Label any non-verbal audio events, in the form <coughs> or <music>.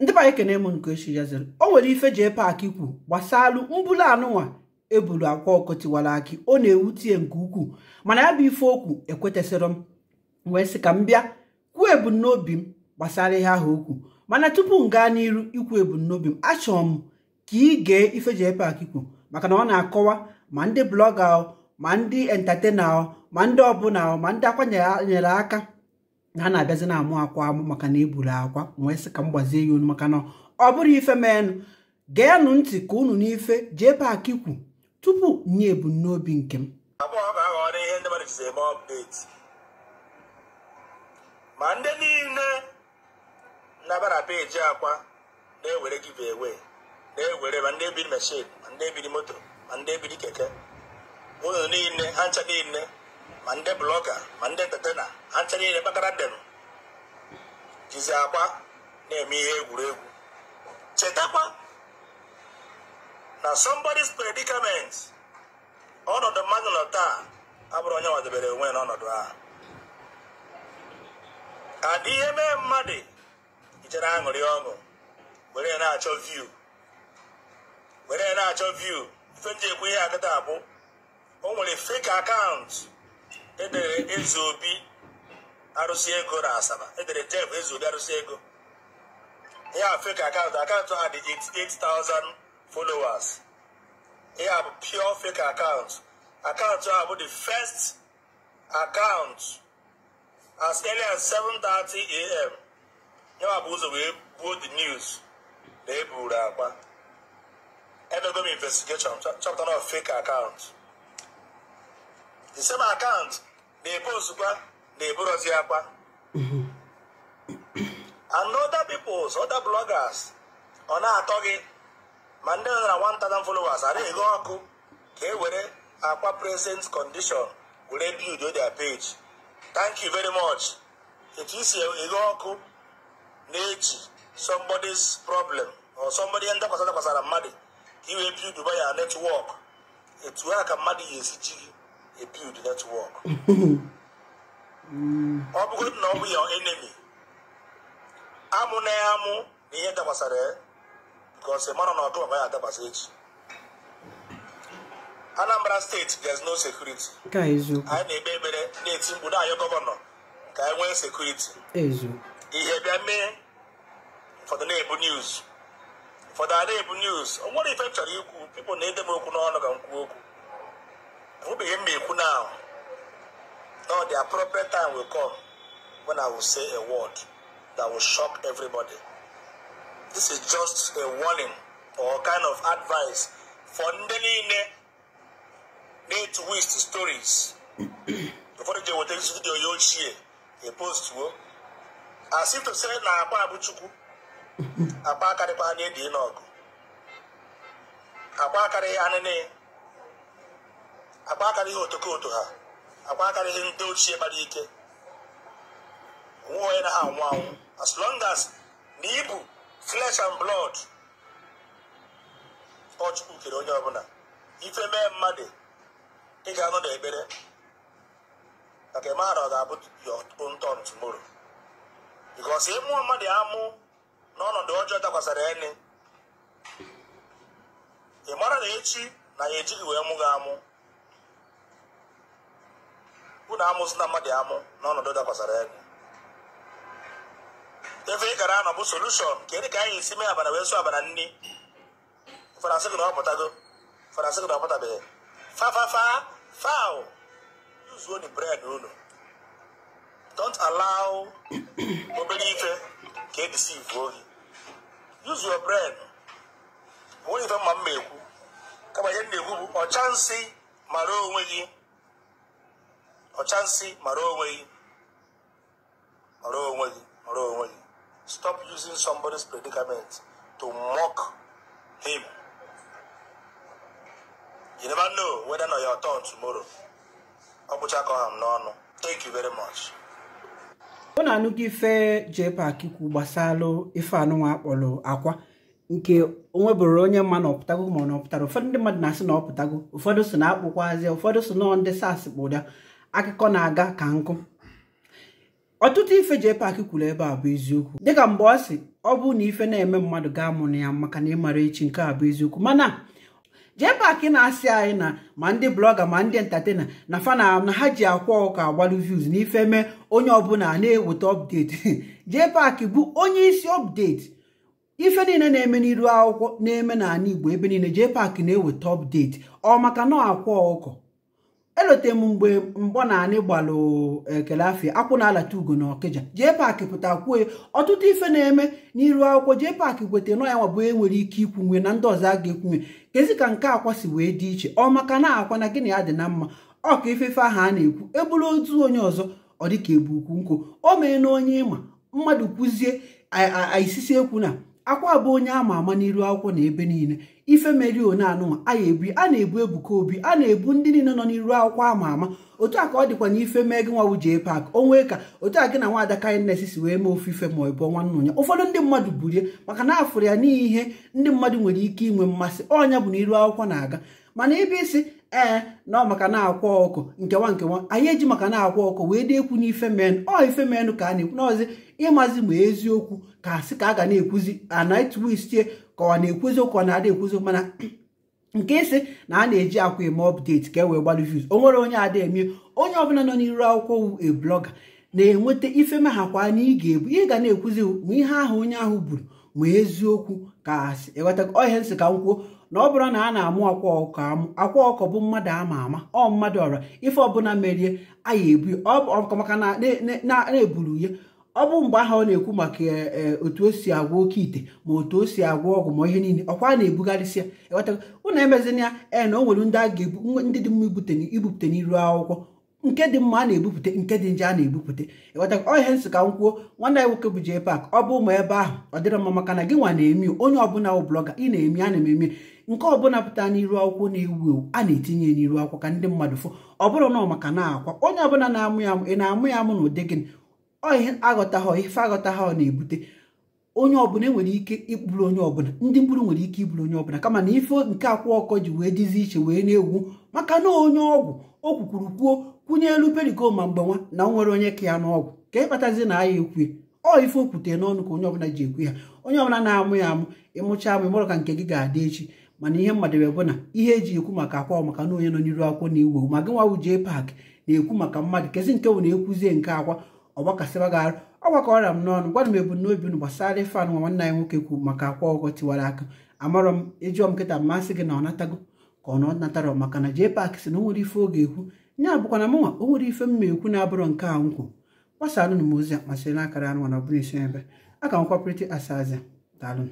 ndị banye ekene m nke echi yaziri o nwere ife jee paaki ikwu gbasalụ mbulu anụnwa ebulu akwa ọkụ tiwara ọ na tie nke ukwuu mana ya bụ ife okwu ekwetasịrọ m wee sị ka m bịa kwuo ebumnobi m gbasara ihe ahụ okwu mana tupu m gaa n'iru ikwu ebumnobi m achọrọ m ka ị gee ife jee paaki ikwu maka na ọ na-akọwa ma ndị blọga ma ndị entatena ma ndị ọbụla ma ndị nyere aka ha na-abịazi na-amụ akwa amụ maka na eburu akwa wee sị ka m gbazie ya olu maka na ọ bụrụ ife meenụ geenụ ntị ka unu n'ife jee paaki kwu tupu nye ebumnobi nke m ma ndị niile nabara peji akwa na-ewere giveaway na-ewere ma ndị ebiri mashin ma ndị ebiri moto ma ndị ebiri keke unu niile ha ncha niile ma ndị blọga ma ndị tetena ha ncha niile kpakara ndenu jizi akwa na-eme ihe egwuregwu chetakwa na somebody's predicament ọnọdụ mmadụ nọ taa abụrụ onye nwadebere onwe n'ọnọdụ a adị ihe mee mmadụ ijere aṅụrị ọṅụ were na-achọ view were na-achọ view ife m ji ekwu ihe akịta abụ o nwere fake akaụntụ edere eze obi arụsị ego na asaba edere def eze obi arụsị ego ya fake akaụntụ akaụntụ ha dị 88,000 followers ya bụ pure fake akaụntụ akaụntụ ha bụ the first account as early as 7:30 a.m. ya bụ ụzọ wee buo the news na eburu akpa edogo m investigation chọpụtara fake akaụntụ the same account na-ebe ozugbo na-eburozi akwa and other peoples other bloggers ọ na-atọ gị ma ndị nọ na 1000 followers ara eghe ọkụ ka e were akwa present condition were build their page thank you very much etu isi eghe ọkụ na-eji somebody's problem or somebody ndakwasa dakwasara mmadụ ka iwee build by ya network etu a ka mmadụ ga-esi ji gị build network ọ bụgodị na ọ bụ ya enemi amụ na ya amụ na ihe dabasara ya because mara na ọdụ ya adabasa echi Anambra steeti there is no security anyị na-ekpe ekpere na-eti mkpu na gọvanọ ka anyị nwee sekuriti ihe bịa mee ụfọdụ na-ebu news ụfọdụ a na-ebu news o ife m chọrọ ikwu pipụl na-ede m okwu n'ọnụ ga nkwu okwu who be mmeku now now the appropriate time will come when i will say a word that will shock everybody this is just a warning or kind of advice for ndị niile na-etu wist stories <clears throat> before ụfọdụ ji eweta studio ya ochie epostuo as if to say na agba abụ chukwu agba <laughs> akarịkwa anya edi n'ọgụ agba akarịghị anịnị ihe otokoto ha akara ihe ndị ochie gbara ike onwe onye na ha anwụ anwụ as long as na ịbụ flesh and blood ọ kere onye ọbụla ife mee mmadụ ị ga-anọ n'ekpere maka maara ọ ga-abụ your own ọsị tomorrow ị mmadụ amụ n'ọnọdụ ọjọọ dakwasara ene ị mara na echi na ya ejighị wee mụ gị amụ bụ na amụsị na mmadụ amụ n'ọnọdụ dakwasara egwu ebe ị gara anọ bụ solushọn ka ka anyị esi mee abana wee sụ abana nri faransị gị na ọpụtago faransị gị na ọpụtabeghị fafafa faụ uzuo ni bred unu don't allow <coughs> obere ife ka edisivu ohi use your brain onweghị ife mma mma ekwu kama ihe m na-ekwu bụ ọcha nsị mara onwe gị ọchansị mara onwe gị mara onwe gị mara onwe gị stop using somebody's predicament to mock him you never know whether na your turn tomorrow ọ bụ ka ọha n'ọnụ thank you very much ọ na-anụgo ife JPAC kwụ gbasara ife anụnwa akpọrọ akwa nke onwebụrụ onye mma na ọpụtago ma ọ na ọpụtara ụfọdụ ndị mmadụ na-asị na ọpụtago ụfọdụ so na akpụkwazị ụfọdụ so na ndị sas kpụda akụkọ na-aga ka nkụ ọtụtụ ife Jpac kwuru ebe a bụ eziokwu dịka mgbe ọ sị ọ bụ na ife na-eme mmadụ ga-amụ ya maka na ịmara echi nke a bụ eziokwu mana Jpac na-asị anyị na ma ndị blọga ma ndị entatena na fana na ha ji akwa ụka agbaru views na ife mee onye ọbụla na-eweta jee <laughs> Jpac bụ onye isi ọpdeti ife niile na-eme n'iru akwụkwọ na-eme n'ala Igbo ebe niile Jpac na-eweta update ọ maka na akwa ụkọ elote m mgbe mgbọ na anị gbalụ ekele eh, afịa akwụ na alata ugo na ọkịja jee paakị pụta kwue ọtụtụ ife na-eme n'iru akwụkwọ jee paakị gweta nọ ya nwabụ enwere ike ikwunwe na ndị ọzọ a ga-ekwunwe kezi ka nke akwa si wee dị iche ọ maka na akwa na gịnị ya dị na mma ọ ka ifefe ahụ a na-ekwu eburu otu onye ọzọ ọ dịka ebu ukwu nkwụ o mee na onye ịma mmadụ kwụzie aisisi ekwu na akwa bụ onye ama ama n'iru akwụkwọ na ebe niile ife meri oneanụnwa a ebu a na-ebu ebuka obi a na-ebu ndị niile nọ n'iru akwụkwọ ama ama otu a ka ọ dịkwa na ife mee gị nwa jee pak onwee ka otu a gị na nwaada kindness si wee mee ofe ife ma ọ bụ ọnwa nnụnya ụfọdụ ndị mmadụ burie maka na afụrụ ya n'ihe ndị mmadụ nwere ike inwe mmasị ọnya bụ na iru akwụkwọ na-aga mana ebe isi ee na maka na-akwa ọkụ nkewa nkewa anyị eji maka na-akwa ọkụ wee ekwu n'ife men ọ ife menụ ka a na-ekwu n'ọzi ịmazi ma eziokwu ka asị ka a ga na-ekwuzi anatwistie ka ọ na-ekwuzi ụkọ na-ada ekwuzi mana <clears throat> nke isi na a na-eji akwa eme ọpdeti ka e wee gbalụ views o nwere onye ada eme onye ọbụla nọ n'iru akwụkwọ wu e blọga na-enweta ife kwa na ị ga-ebu ị ga na-ekwuzi ma ihe ahụ onye ahụ buru ma eziokwu ka ịghọta e ọhịa nsị ka m kwuo na ọ bụrụ na a na-amụ akwa ọkọ akwa ọkọ bụ mmadụ ama ama ọ mmadụ ọra ife ọbụla merie aya ebu maka na-eburu ya ọ bụ mgbe ahụ ọ na-ekwu maka e, e, otu o si agwọ oke ite ma otu o si agwọ ọgwụ ma ihe niile ọkwa a na-ebugarịsị ya ịghọtago ụnụ emezina ya e na o nwere ndị a ga-ebu ndị dị mma ibute n'iru akwụkwọ nke dị mma a na-ebupụta nke dị nje a na-ebupụta ịghọta ọ ihe nsị ka m kwuo nwanne anyị nwoke bụ jee pak ọ bụ ụmụ ebe ahụ ọ dịrọ mma maka na gị nwa na-emi onye ọbụla bụ blọga ị na-emi a na-eme eme nke ọbụla pụta n'iru akwụkwọ na-ewu ewu a na-etinye n'iru akwụkwọ ka ndị mmadụ fụ ọ bụrụ na maka na akwa onye ọbụla na-amụ ya amụ ị na-amụ ya amụ na ụdị gịnị ọ ihe aghọtaghọ ife aghọtaghọ na-ebute onye ọbụla nwere ike ịkpụrụ onye ọbụla ndị mkpụrụ nwere ike ịbụrụ onye ọbụla kama na ife nke akwụ ọkọ ji wee dịzi iche wee na-egwu maka na onye ọgwụ o kwukwuru kwuo kwunye elu periko ma mgbe nwa na nwere onye ka ya n'ọgwụ ka ịkpatazi na ya ekwue ọ ife okwute n'ọnụ ka onye ọbụla ji ekwe ha onye ọbụla na-amụ ya amụ ịmụcha amụ ịmụrụ ka nke gị ga-adị echi mana ihe mmadụ bụ na ihe eji ekwu maka akwa maka na onye nọ n'iru akwụkwọ na iwu ma gị nwa wujee paakị na-ekwu maka mmadụ kezi nke bụ na-ekwuzie nke akwa ọgbakasịba gị arụ ọgbakọrọ m n'ọnụ gwara m ebumnobi unu gbasara ife nwa nwanne anyị nwoke kwu maka akwa ọkọ tiwara aka amarọ m ịjụọ m nkịta mmasị gị na ọ natago ka ọ na natara maka na JPAC na o nwere ife oge ekwu nya bụkwa na mụnwa o nwere ife mma ekwu na abụrụ nke a nkwu alụnụ m ozi a masịrị na akara anụ na ọ isi ebe a ka m kwapụrịta asazia daalụ